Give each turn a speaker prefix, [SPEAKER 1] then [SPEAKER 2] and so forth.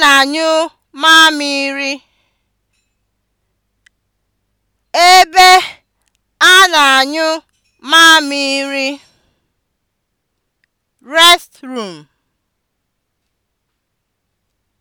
[SPEAKER 1] na-anyụ mamịrị, ebe a na-anyụ mamịrị. restroom